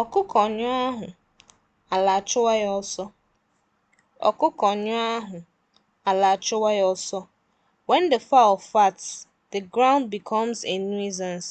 Ọkụkọ nyụọ ahụ, ala achụwa ya ọsọ. Ọkụkọ nyụọ ahụ, ala achụwa ya ọsọ. When the fowl FAT the ground becomes a nuisance.